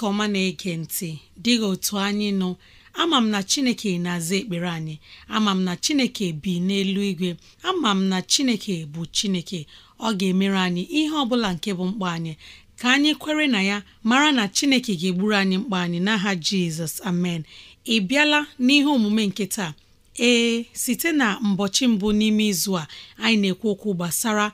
chineke ọma na-ege ntị dịghị otu anyị nọ ama m na chineke na-aza ekpere anyị ama m na chineke bi n'elu igwe ama m na chineke bụ chineke ọ ga-emere anyị ihe ọ bụla nke bụ mkpa anyị ka anyị kwere na ya mara na chineke ga-egburu anyị mkpa anyị n'aha jizọs amen ị bịala n'ihe omume nke taa ee site na mbọchị mbụ n'ime izu a anyị na-ekwu okwu gbasara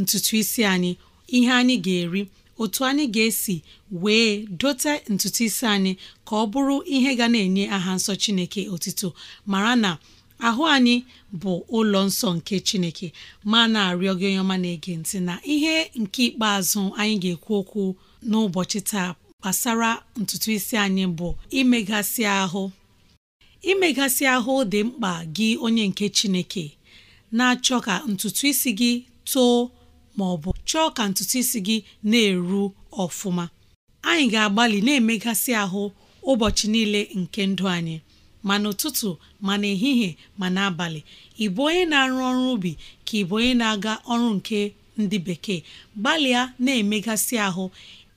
ntutu isi anyị ihe anyị ga-eri otu anyị ga-esi wee dote ntutu isi anyị ka ọ bụrụ ihe ga na-enye aha nsọ Chineke otito mara na ahụ anyị bụ ụlọ nsọ nke Chineke ma na-arịọ gị onye ọma na-ege ntị na ihe nke ikpeazụ anyị ga-ekwu okwu n'ụbọchị taa gbasara ntutu isi anyị bụ imegasị ahụ imegasị ahụ dị mkpa gị onye nke Chineke na-achọ ka ntutu isi gị too ma ọ bụ chọọ ka ntutu isi gị na-eru ọfụma anyị ga-agbalị na-emegasị ahụ ụbọchị niile nke ndụ anyị ma n'ụtụtụ ma n'ehihie ma n'abalị ị bụ onye na-arụ ọrụ ubi ka ị onye na-aga ọrụ nke ndị bekee gbalịa na-emegasị ahụ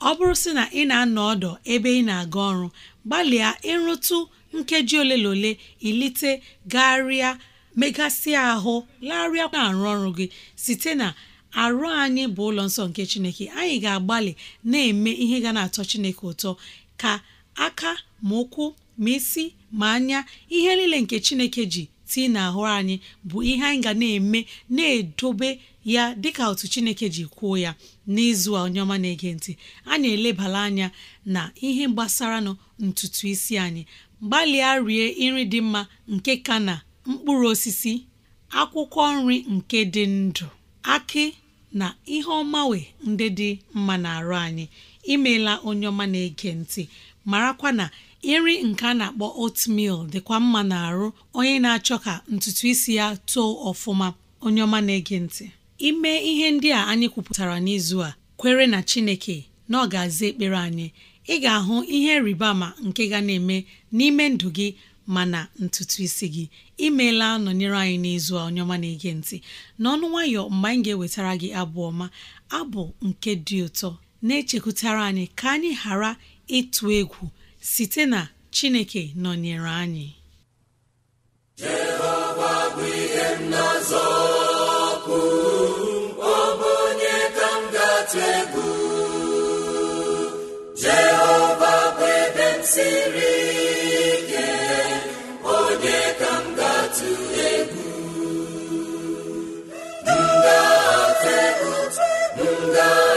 ọ bụrụ sị na ị na-anọ ọdọ ebe ị na-aga ọrụ gbalịa ịrụtụ nkeji ole na ole ilite garịa megasị ahụ larịa na-arụ ọrụ gị site na arụ anyị bụ ụlọ nsọ nke chineke anyị ga-agbalị na-eme ihe ga na-atọ chineke ụtọ ka aka ma ụkwụ ma isi ma anya ihe niile nke chineke ji tii ahụ anyị bụ ihe anyị ga na-eme na-edobe ya dịka otu chineke ji kwuo ya n'izu a onye ọma na-ege ntị anyị elebala anya na ihe gbasaranụ ntutu isi anyị gbalịa rie nri dị mma nke ka na mkpụrụ osisi akwụkwọ nri nke dị ndụ aki. na ihe ọmawe ndị dị mma na-arụ anyị imela onye ọma na-ege ntị marakwa na nri nke a na-akpọ oatmeal dịkwa mma na-arụ onye na-achọ ka ntutu isi ya too ọfụma onye ọma na-ege ntị ime ihe ndị a anyị kwupụtara n'izu a kwere na Chineke na ọ aza ekpere anyị ị ga-ahụ ihe rịba ama nke ga na-eme n'ime ndụ gị mana ntutu isi gị imeela nọnyere anyị n'izu onye ọma na-ege ntị n'ọnụ nwayọ mgbe anyị ga-ewetara gị abụ ọma abụ nke dị ụtọ na-echekwutara anyị ka anyị ghara ịtụ egwu site na Chineke nọnyere anyị Jehova bụ ihe m Buddha.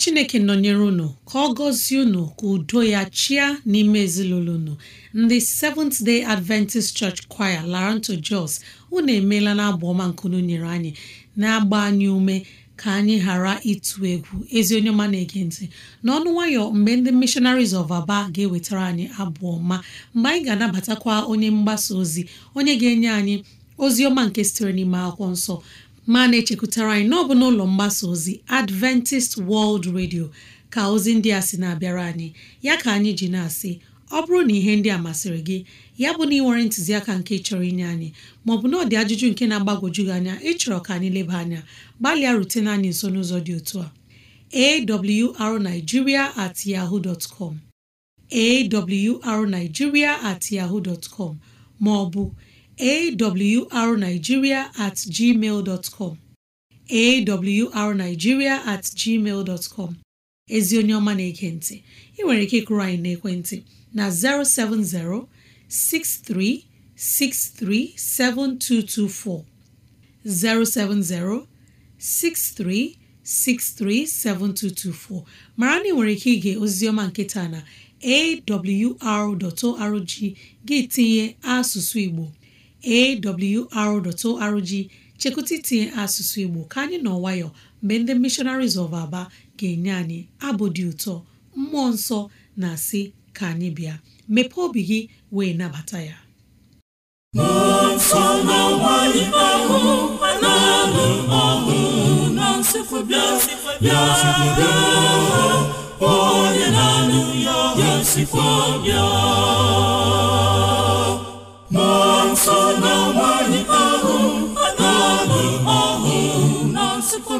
chineke nọnyere unu ka ọ gọzie unu ka udo ya chia n'ime ezinụlọ unu ndị Seventh Day Adventist Church Choir Laranto Jos unu emeela na abụ ọma nkunu nyere anyị na-agba anyị ume ka anyị ghara ịtụ egwu ezi onye ọma na-ege ntị n'ọnụ nwayọ mgbe ndị mishonaris of Aba ga-ewetara anyị abụọ ma mgbe anyị ga-anabatakwa onye mgbasa ozi onye ga-enye anyị ozi ọma nke sitere n'ime akwụkwọ nsọ ma na-echekwutara anyị n'ọbụ n'ụlọ mgbasa ozi Adventist World Radio ka ozi ndị a sị na-abịara anyị ya ka anyị ji na-asị ọ bụrụ na ihe ndị a masịrị gị ya bụ na ị nwere ntụziaka nke chọrọ inye anyị maọbụ na ọdị ajụjụ nke na-agbagwoju gị anya ịchọrọ ka anyị leba anya gbalịa rutena anyị nso n'ụzọ dị otu a arigiria at yahoo dot com awrnigeria at yahoo dot com maọbụ awrnigeria at gmail dot com awrnigeria at gmail dot com ezi onye ọma na-ege ị nwere ike ịkụrụ anyị n'ekwentị na 070 6363 7224 070 6363 7224 mara na ị nwere ike ige oziọma nkịta na awr.org gị tinye asụsụ Igbo awr.org chekwụta itinye asụsụ Igbo ka anyị nọ nwayọọ mgbe ndị Missionaries of Aba ga-enye anyị abụ dị ụtọ mmụọ nsọ na-asị ka anyị bịa mepee obi gị wee nabata ya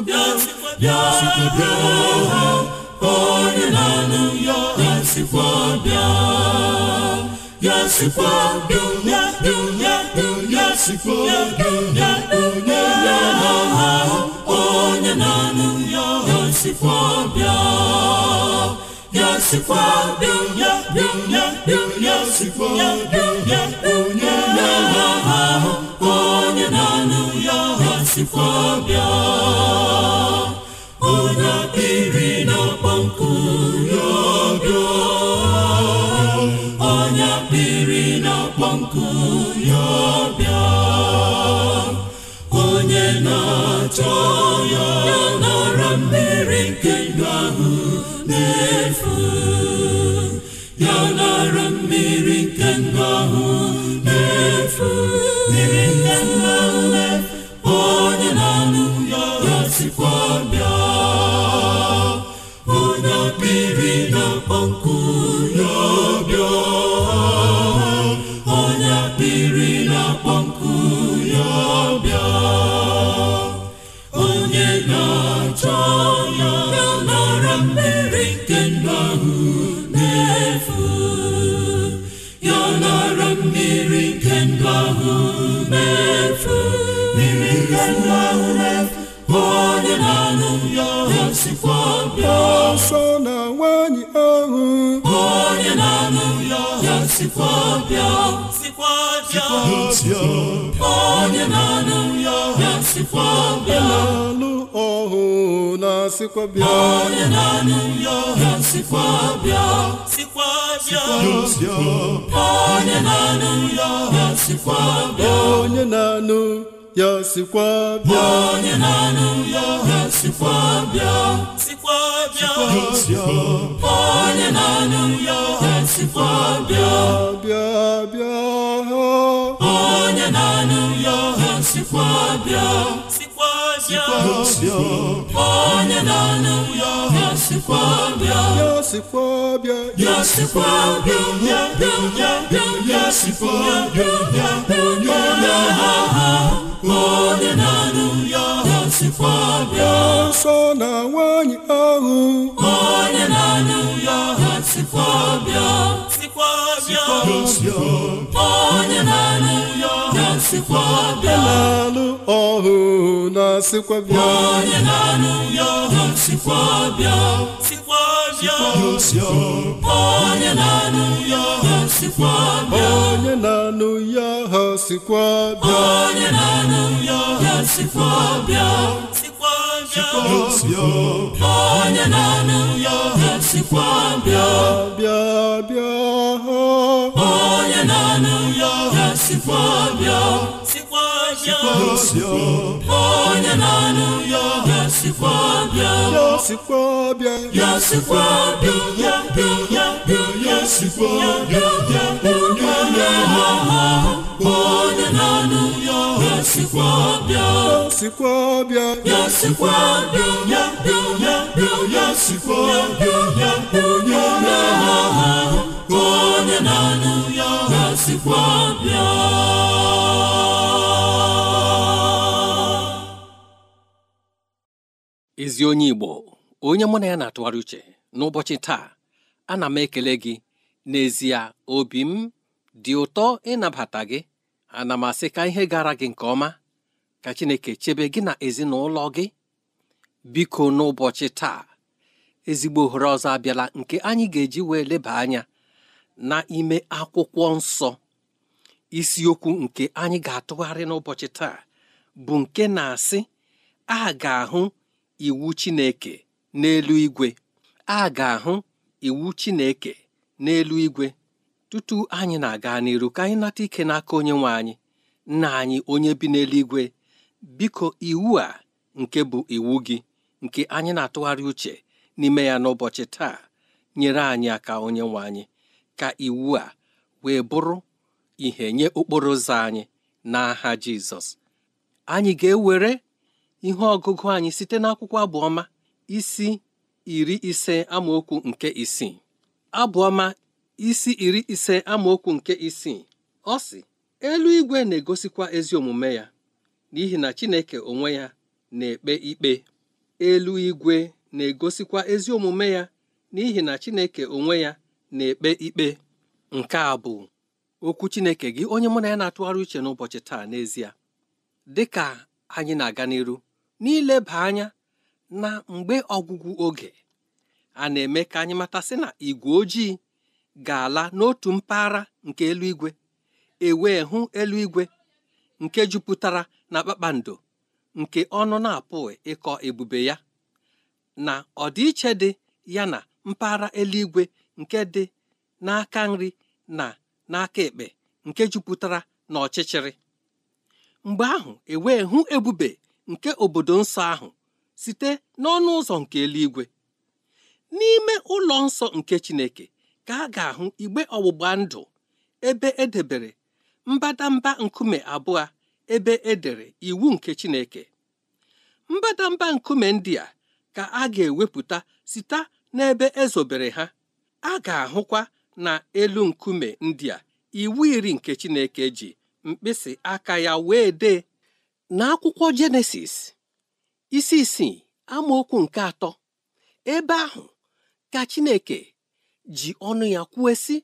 bịa ya onye na-anụ ya ya sikwa bịa ya sikwa bịa bịa ya sikwa bịa onye onye na-anụ ya ya bịa ya sikwa bịa bịa ya sikwa bịa onye na-ahụ sikwa bịa onye akpịrị na onye akpịrị na-akpọ onye na-achọ ya nara mmiri nke ndụ n'efu ya nara na-alụ ọhụ na sikwa bịa onye na-anụ ya sikwa bịa onye na-anụ ya sikwa bịa sikwa bịa onye na-anụ ya sikwa bịa bịa bịa onye na-anụ ya sikwa bịa nsọ na nwanyị ahụ onye na-anụ ya ha sikwa bịa sikwa bịa onye na-anụ ya bịa na-alụ ọhụ na sikwa bịa onye na-alụ ya ọhụ sikwa bịa sikwa bịa onye na-alụ ya ọhụ sikwa bịa onye na-alụ ya ọhụ sikwa bịa onye na-alụ ya ọhụ sikwa bịa sikwa onye na-alụ ya ọhụ sikwa bịa bịa bịa onye na-alụ ya ọhụ sikwa bịa sikwa onye na ya onye na ya onye na onye na-anụ ya ọha sikwa bịa ezi onye Igbo onye mụ na ya na-atụgharị uche n'ụbọchị taa ana m ekele gị n'ezie obi m dị ụtọ ịnabata gị ana m asị ka ihe gara gị nke ọma ka Chineke chebe gị na ezinụlọ gị biko n'ụbọchị taa ezigbo ohere ọzọ abịala nke anyị ga-eji wee leba anya n'ime akwụkwọ nsọ isiokwu nke anyị ga-atụgharị n'ụbọchị taa bụ nke na-asị a ga-ahụ iwu Chineke n'elu igwe a ga-ahụ iwu Chineke n'elu igwe tutu anyị na-aga n'iru ka anyị nata ike n'aka onye nwe anyị nna anyị onye bi n'eluigwe biko iwu a nke bụ iwu gị nke anyị na-atụgharị uche n'ime ya n'ụbọchị taa nyere anyị aka onye nwe anyị ka iwu a wee bụrụ ihe nye okporo ụzọ anyị n'aha Jizọs anyị ga-ewere ihe ọgụgụ anyị site n'akwụkwọ abụọma isi iri ise amaokwu nke isii abụọma isi iri ise amaokwu nke isii ọ sị igwe na-egosikwa ezi omume ya n'ihi na Chineke onwe ya na-ekpe ikpe eluigwe na-egosikwa ezi omume ya n'ihi na Chineke onwe ya na-ekpe ikpe nke a bụ okwu Chineke gị onye mụ na ya na-atụgharị uche n'ụbọchị taa n'ezie dị ka anyị na-aga n'iru n'ileba anya na mgbe ọgwụgwụ oge a na-eme ka anyị matasị na igwe ojii ga-ala n'otu mpaghara nke eluigwe ewee hụ eluigwe nke jupụtara na kpakpando nke ọnụ na-apụghị ịkọ ebube ya na ọdịiche dị ya na mpaghara eluigwe nke dị n'aka nri na n'aka ekpe nke jupụtara na ọchịchịrị mgbe ahụ e hụ ebube nke obodo nsọ ahụ site n'ọnụ ụzọ nke eluigwe n'ime ụlọ nsọ nke Chineke ka a ga-ahụ igbe ọgbụgba ndụ ebe edebere mbadamba nkume abụọ ebe edere iwu nke Chineke mbadamba nkume ndị a ka a ga-ewepụta site n'ebe ezobere ha a ga-ahụkwa n'elu nkume ndị a iwu iri nke Chineke ji mkpịsị aka ya wee dee N'akwụkwọ akwụkwọ Jenesis isi isii amaokwu nke atọ ebe ahụ ka Chineke ji ọnụ ya kwuo si,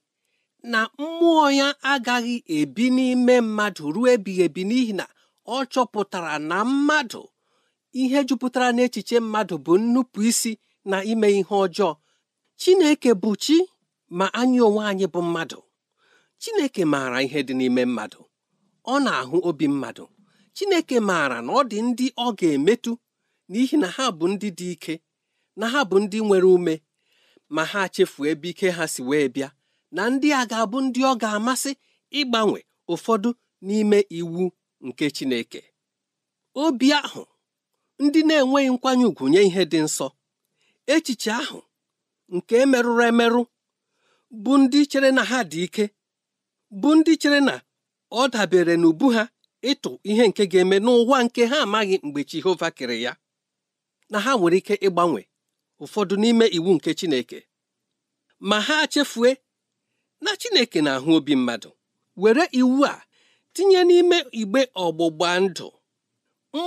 na mmụọ ya agaghị ebi n'ime mmadụ ruo ebighị ebi n'ihi na ọ chọpụtara na mmadụ ihe jupụtara n'echiche mmadụ bụ nnupụ na ime ihe ọjọọ chineke bụ chi ma anyị onwe anyị bụ mmadụ chineke maara ihe dị n'ime mmadụ ọ na-ahụ obi mmadụ chineke maara na ọ dị ndị ọ ga-emetụ n'ihi na ha bụ ndị dị ike na ha bụ ndị nwere ume ma ha chefuo ebe ike ha si wee bịa na ndị a ga-abụ ndị ọ ga-amasị ịgbanwe ụfọdụ n'ime iwu nke chineke obi ahụ ndị na-enweghị nkwanye ùgwù nye ihe dị nsọ echiche ahụ nke merụrụ emerụ bụ ndị chere na ha dị ike bụ ndị chere na ọ dabere n'ubu ha ịtụ ihe nke ga-eme n'ụwa nke ha amaghị mgbe Jehova kere ya na ha nwere ike ịgbanwe ụfọdụ n'ime iwu nke Chineke ma ha chefue na Chineke na-ahụ obi mmadụ were iwu a tinye n'ime igbe ọgbụgba ndụ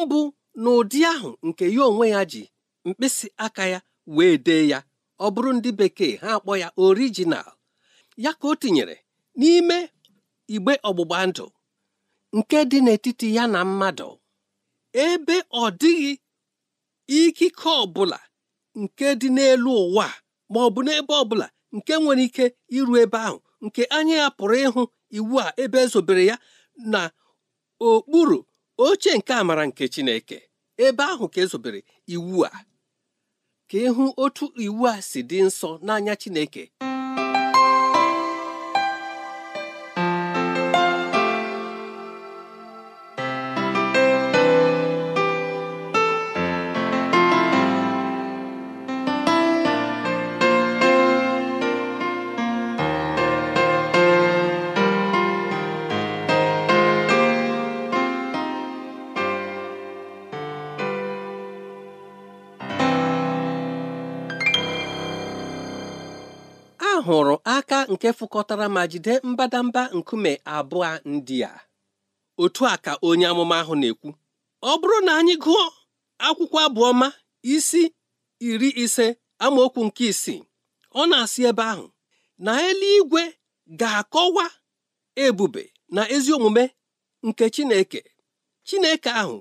mbụ n'ụdị ahụ nke ya onwe ya ji mkpịsị aka ya wee dee ya ọ bụrụ ndị bekee ha akpọ ya orijinal ya ka o tinyere n'ime igbe ọgbụgba ndụ nke dị n'etiti ya na mmadụ ebe ọ dịghị ikike ọbụla nke dị n'elu ụwa ma ọ bụ n'ebe ọbụla nke nwere ike iru ebe ahụ nke anya ya pụrụ ịhụ iwu a ebe ezobere ya na okpuru oche nke amara nke Chineke ebe ahụ ka ezobere iwu a ka ịhụ otu iwu a si dị nsọ n'anya Chineke hụrụ aka nke fụkọtara ma jide mbadamba nkume abụọ ndị a otu a ka onye amụma ahụ na-ekwu ọ bụrụ na anyị gụọ akwụkwọ abụọma isi iri ise amaokwu nke isii ọ na-asị ebe ahụ na eluigwe ga-akọwa ebube na ezi omume nke Chineke Chineke ahụ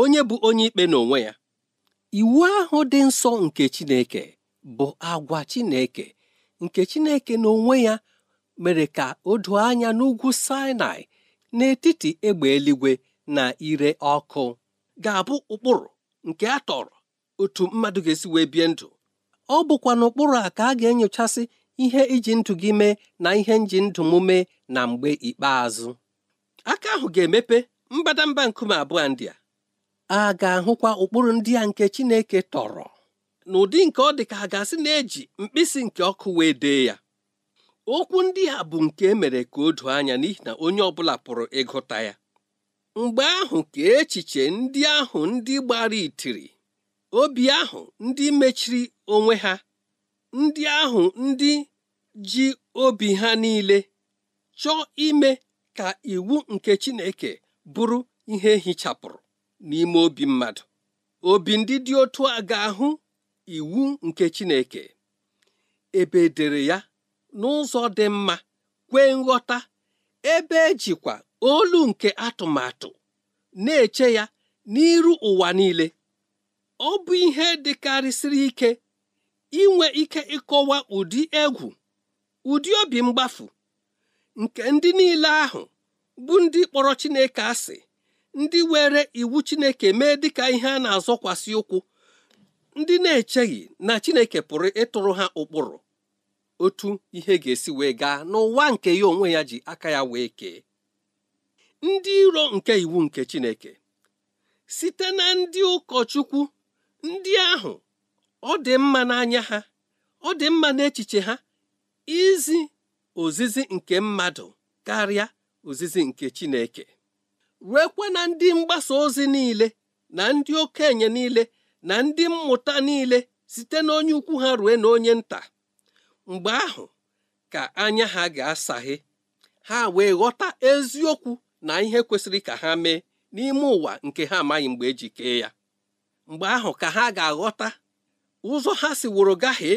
onye bụ onye ikpe n'onwe ya iwu ahụ dị nsọ nke Chineke bụ agwa Chineke nke Chineke n'onwe ya mere ka o doo anya n'ugwu Sinai n'etiti egbe eluigwe na ire ọkụ ga-abụ ụkpụrụ nke a tọrọ otu mmadụ ga-esi wee bie ndụ ọ bụkwa n'ụkpụrụ a ka a ga-enyochasị ihe iji ndụ gị mee na ihe nji ndụ m mee na mgbe ikpeazụ aka ahụ ga-emepe mbadamba nkume abụọ ndị a a ga-ahụkwa ụkpụrụ ndị a nke Chineke tọrọ n'ụdị nke ọ dị ka a na-eji mkpịsị nke ọkụ wee dee ya okwu ndị ha bụ nke emere ka o doo anya n'ihi na onye ọ bụla pụrụ ịgụta ya mgbe ahụ ka echiche ndị ahụ ndị gbara itiri obi ahụ ndị mechiri onwe ha ndị ahụ ndị ji obi ha niile chọọ ime ka iwu nke Chineke bụrụ ihe hichapụrụ n'ime obi mmadụ obi ndị dị otu a ga-ahụ iwu nke Chineke ebe edere ya n'ụzọ dị mma kwee nghọta ebe ejikwa olu nke atụmatụ na-eche ya n'iru ụwa niile ọ bụ ihe dịkarịsịrị ike inwe ike ịkọwa ụdị egwu ụdị obi mgbafu nke ndị niile ahụ bụ ndị kpọrọ Chineke asị ndị were iwu Chineke mee dịka ihe a na-azọkwasị ụkwụ ndị na-echeghị na Chineke pụrụ ịtụrụ ha ụkpụrụ otu ihe ga-esi wee gaa n'ụwa nke ya onwe ya ji aka ya wee kee ndị iro nke iwu nke Chineke site na ndị ụkọchukwu ndị ahụ ọ dị mma n'anya ha ọ dị mma n'echiche ha izi ozizi nke mmadụ karịa ozizi nke Chineke ruekwa na ndị mgbasa ozi niile na ndị okenye niile na ndị mmụta niile site n'onye ukwu ha rue na onye nta mgbe ahụ ka anya ha ga-asaghe ha wee ghọta eziokwu na ihe kwesịrị ka ha mee n'ime ụwa nke ha amaghị mgbe eji kee ya mgbe ahụ ka ha ga-aghọta ụzọ ha si wụrụ gaghị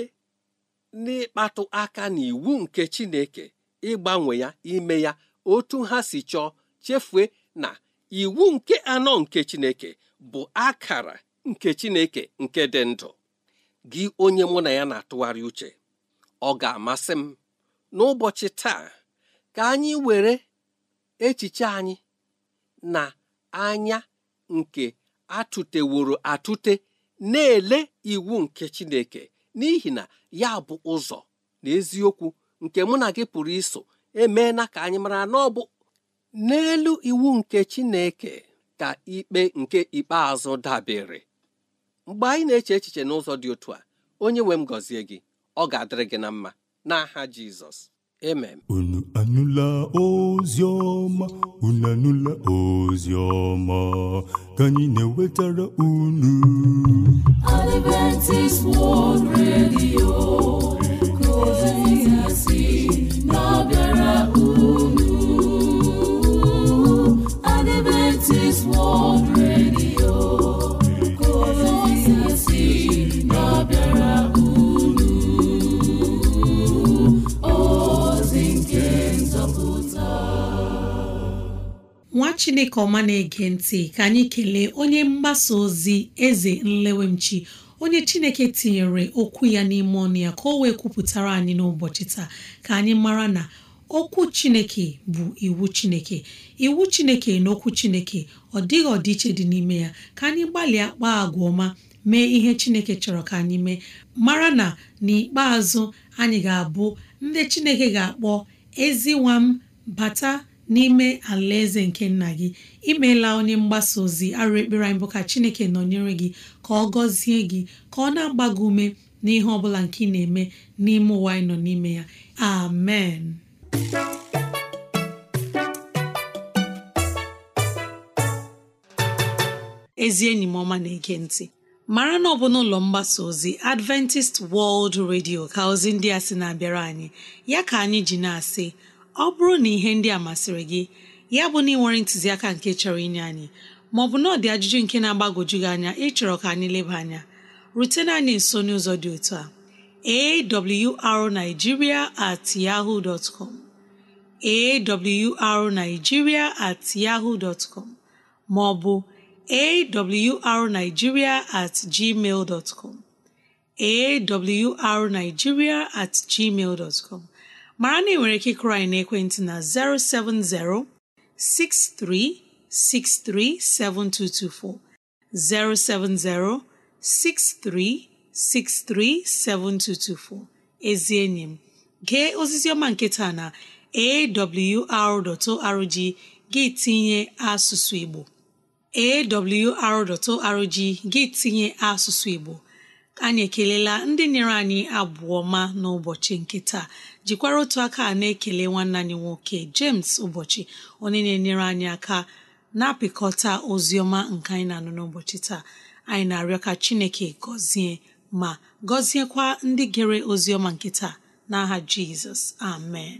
n'ịkpatụ aka n'iwu nke Chineke ịgbanwe ya ime ya otu ha si chọọ chefue na iwu nke anọ nke Chineke bụ akara nke Chineke nke dị ndụ gị onye mụ na ya na-atụgharị uche ọ ga-amasị m n'ụbọchị taa ka anyị were echiche anyị na anya nke atụteworo atụte na-ele iwu nke Chineke n'ihi na ya bụ ụzọ na eziokwu nke mụ na gị pụrụ iso emeela ka anyị mara na ọ bụ n'elu iwu nke Chineke ka ikpe nke ikpeazụ dabere mgbe anyị na-eche echiche n'ụzọ dị otu a onye nwe m gọzie gị ọ ga-adịrị gị na mma n'aha Jizọs amen unu anụla ozi ọma unu anụla ozi ọma ka anyị na-ewetara unu Adventist World Radio chineke ọma na-ege ntị ka anyị kelee onye mgbasa ozi eze nlewemchi onye chineke tinyere okwu ya n'ime ọnụ ya ka o wee kwupụtara anyị n'ụbọchị taa ka anyị mara na okwu chineke bụ iwu chineke iwu chineke na okwu chineke ọ dịghị ọdịiche dị n'ime ya ka anyị gbalịa kpaa agwa ọma mee ihe chineke chọrọ ka anyị mee mara na n'ikpeazụ anyị ga-abụ ndị chineke ga-akpọ nwa m bata n'ime alaeze nke nna gị imeela onye mgbasa ozi arụ ekpere anyị bụ ka chineke nọnyere gị ka ọ gọzie gị ka ọ na-agba gị ume n'ihe ọbụla nke ị na-eme n'ime ụwa anyị nọ n'ime ya amen ezi enyi m ọma na-ege ntị mara na ọ bụ n'ụlọ mgbasa ozi Adventist World Radio ka ozi ndị a sị na-abịara anyị ya ka anyị ji na-asị ọ bụrụ na ihe ndị a masịrị gị ya bụ na ị ntụziaka nke chọrọ inye anyị maọbụ na ọ dị ajụjụ nke na-agbagwoju gị anya ịchọrọ ka anyị leba anya rutena anyị nso n'ụzọ dị otu a arigiria at yahoo dot com awrnigeria at yahoo dot com maọbụ awrnigeria at gmail dot com awrnigeria at gmail com mara na ị nwere ike ịkụrụ anyị n'ekwentị na 070 6363 070 ezi enyi m gee ozizi ọma nke taa na awr.org gị tinye asụsụ Igbo awr.org gị tinye asụsụ Igbo anyị ekelela ndị nyere anyị abụọ ma n'ụbọchị nke taa jikwara otu aka na-ekele nwanne anyị nwoke James ụbọchị onye na-enyere anyị aka na-apịkọta ozi ọma nke anyị na-anụ n'ụbọchị taa anyị na-arịọ ka Chineke gọzie ma gọziekwa ndị gere ozi ọma nke taa n'aha Jizọs amen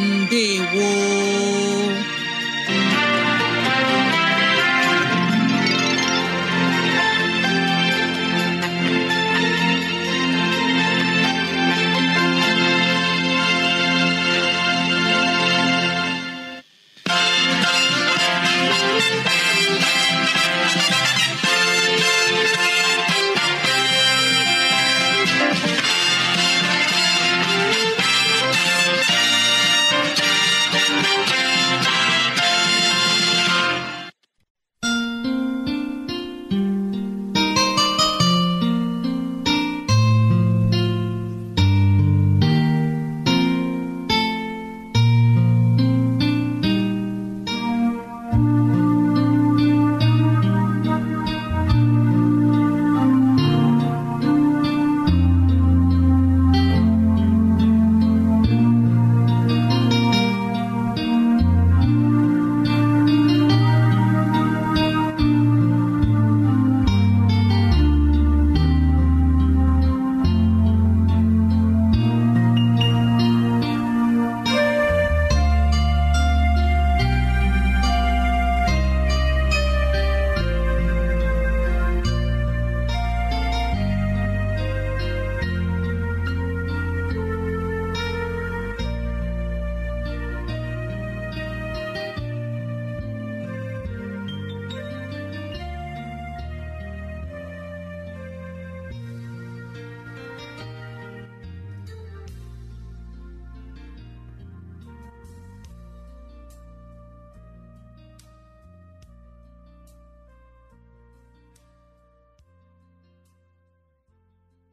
ndị ndewo